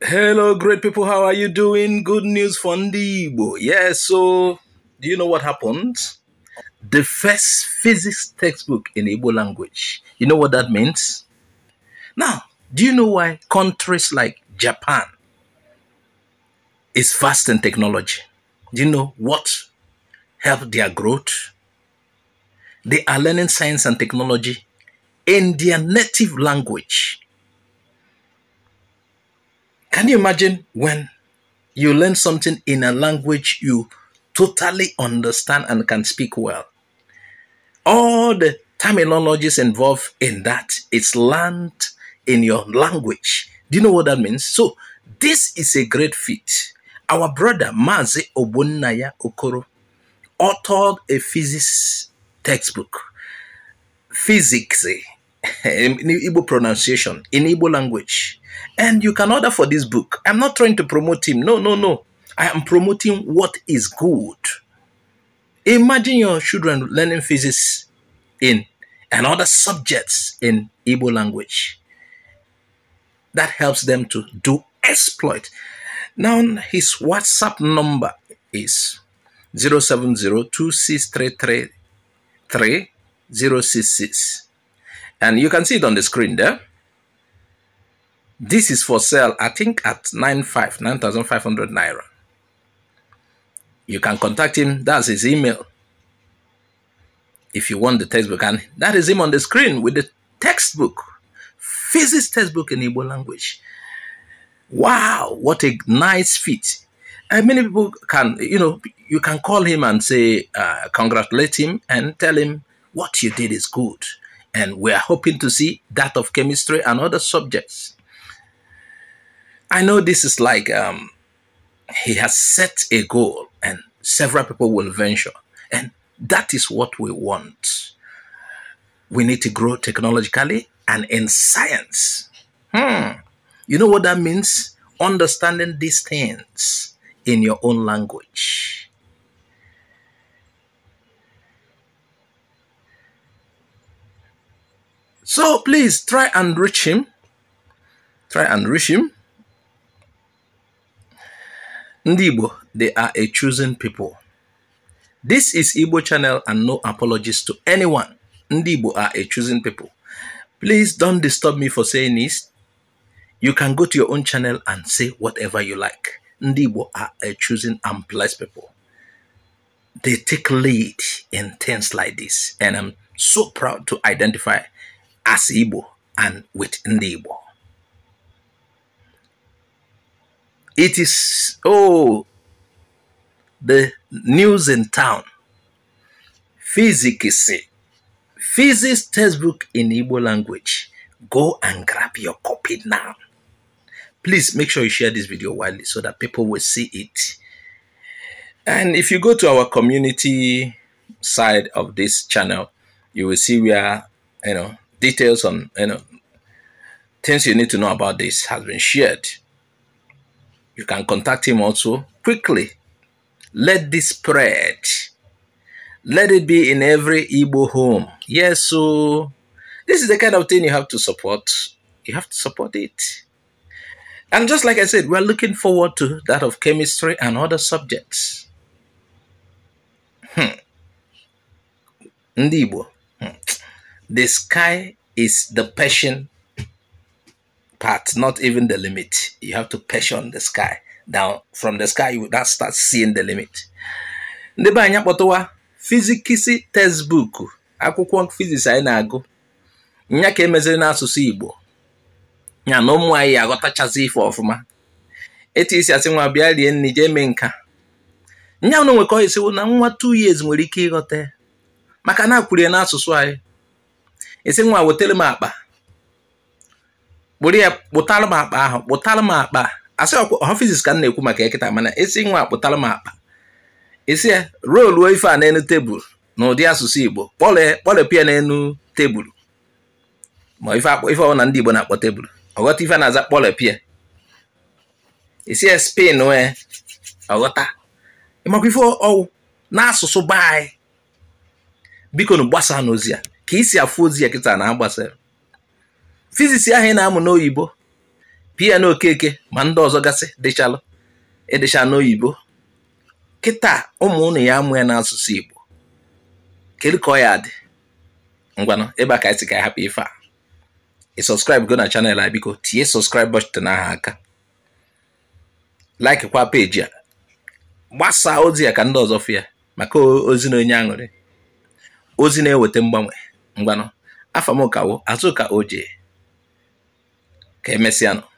Hello, great people. How are you doing? Good news for Ndibo. Yeah, so do you know what happened? The first physics textbook in Igbo language. You know what that means? Now, do you know why countries like Japan is fast in technology? Do you know what helped their growth? They are learning science and technology in their native language can you imagine when you learn something in a language you totally understand and can speak well? All the terminologies involved in that it's learned in your language. Do you know what that means? So this is a great feat. Our brother Mazi Obunaya Okoro authored a physics textbook, physics in Igbo pronunciation, in Igbo language. And you can order for this book. I'm not trying to promote him. No, no, no. I am promoting what is good. Imagine your children learning physics in and other subjects in Igbo language. That helps them to do exploit. Now his WhatsApp number is 070 and you can see it on the screen there. This is for sale, I think, at 95, 9,500 naira. You can contact him. That's his email. If you want the textbook, and that is him on the screen with the textbook, physics textbook in Igbo language. Wow, what a nice feat. And many people can, you know, you can call him and say, uh, congratulate him and tell him what you did is good. And we are hoping to see that of chemistry and other subjects. I know this is like um, he has set a goal, and several people will venture, and that is what we want. We need to grow technologically and in science. Hmm. You know what that means? Understanding these things in your own language. So please try and reach him. Try and reach him. Ndibo, they are a choosing people. This is Igbo channel and no apologies to anyone. Ndibo are a choosing people. Please don't disturb me for saying this. You can go to your own channel and say whatever you like. Ndibo are a choosing and blessed people. They take lead in things like this. And I'm so proud to identify as Igbo and with Ndibo. It is, oh, the news in town. Physics. Physics textbook in Igbo language. Go and grab your copy now. Please make sure you share this video widely so that people will see it. And if you go to our community side of this channel, you will see where, you know, details on, you know, things you need to know about this has been shared. You can contact him also quickly. Let this spread. Let it be in every Igbo home. Yes, so this is the kind of thing you have to support. You have to support it. And just like I said, we're looking forward to that of chemistry and other subjects. Hmm. Ndibo, hmm. the sky is the passion part, not even the limit. You have to passion the sky. Now, from the sky, you now start seeing the limit. Ndị be anyị akpọtụwa fizikisi textbook akwụkwọ fiziks anyị na-agụ nya ka emeziri n'asụsụ Igbo ya na ụmụ anyị aghọtachazi ife ọfụma etu isi asị nwa bịa rie nri jee mee nka nya na nwekọ isiwo na nwa two years nwere ike ịghọta ya maka na akwurie n'asụsụ anyị isi nwa wetere m akpa kpụrụ ya kpụtalụ m akpa ahụ kpụtalụ m akpa a asị ọha fiziks ka m na-ekwu maka ya ekịta mana esi nwa akpụtalụ m akpa esi ya roluo ife a na n'elu tebụl na ụdị asụsụ igbo kpọlepịa n'elu tebụl ma ife ọbụla ndị igbo na-akpọ tebụl ọghọta ife na-aza kpọlepịa esi ya spen wee ọghọta ịmakwa ife ọwụ n'asụsụ be anyị biko na gbasa n'ozi ya ka isi afụ ozi ya kịta na agbasara fizisi ahụ ị na-amụ n'oyibo pia na okeke ma ndị ọzọ gasị dịchalụ ịdịcha n'oyibo kịta ụmụ ụnụ ya amụ ya n'asụsụ igbo kedu ka ọ ya dị ngwanụ ebe a ka anyị si ka anyị hapụ ife a ị sọskraịbụ go na chanel a biko tinye sọskraịb bọchịtị n'aha aka like kwa peji a gbasaa ozi ya ka ndị ọzọ fụ ya maka ozi na onye aṅụrị ozi na-eweta mgbanwe ngwanụ afamokawo azụka oje que es mesiano.